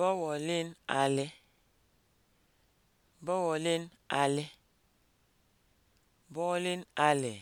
bọwọlin alị bọwọlin alị bọwọlin ale.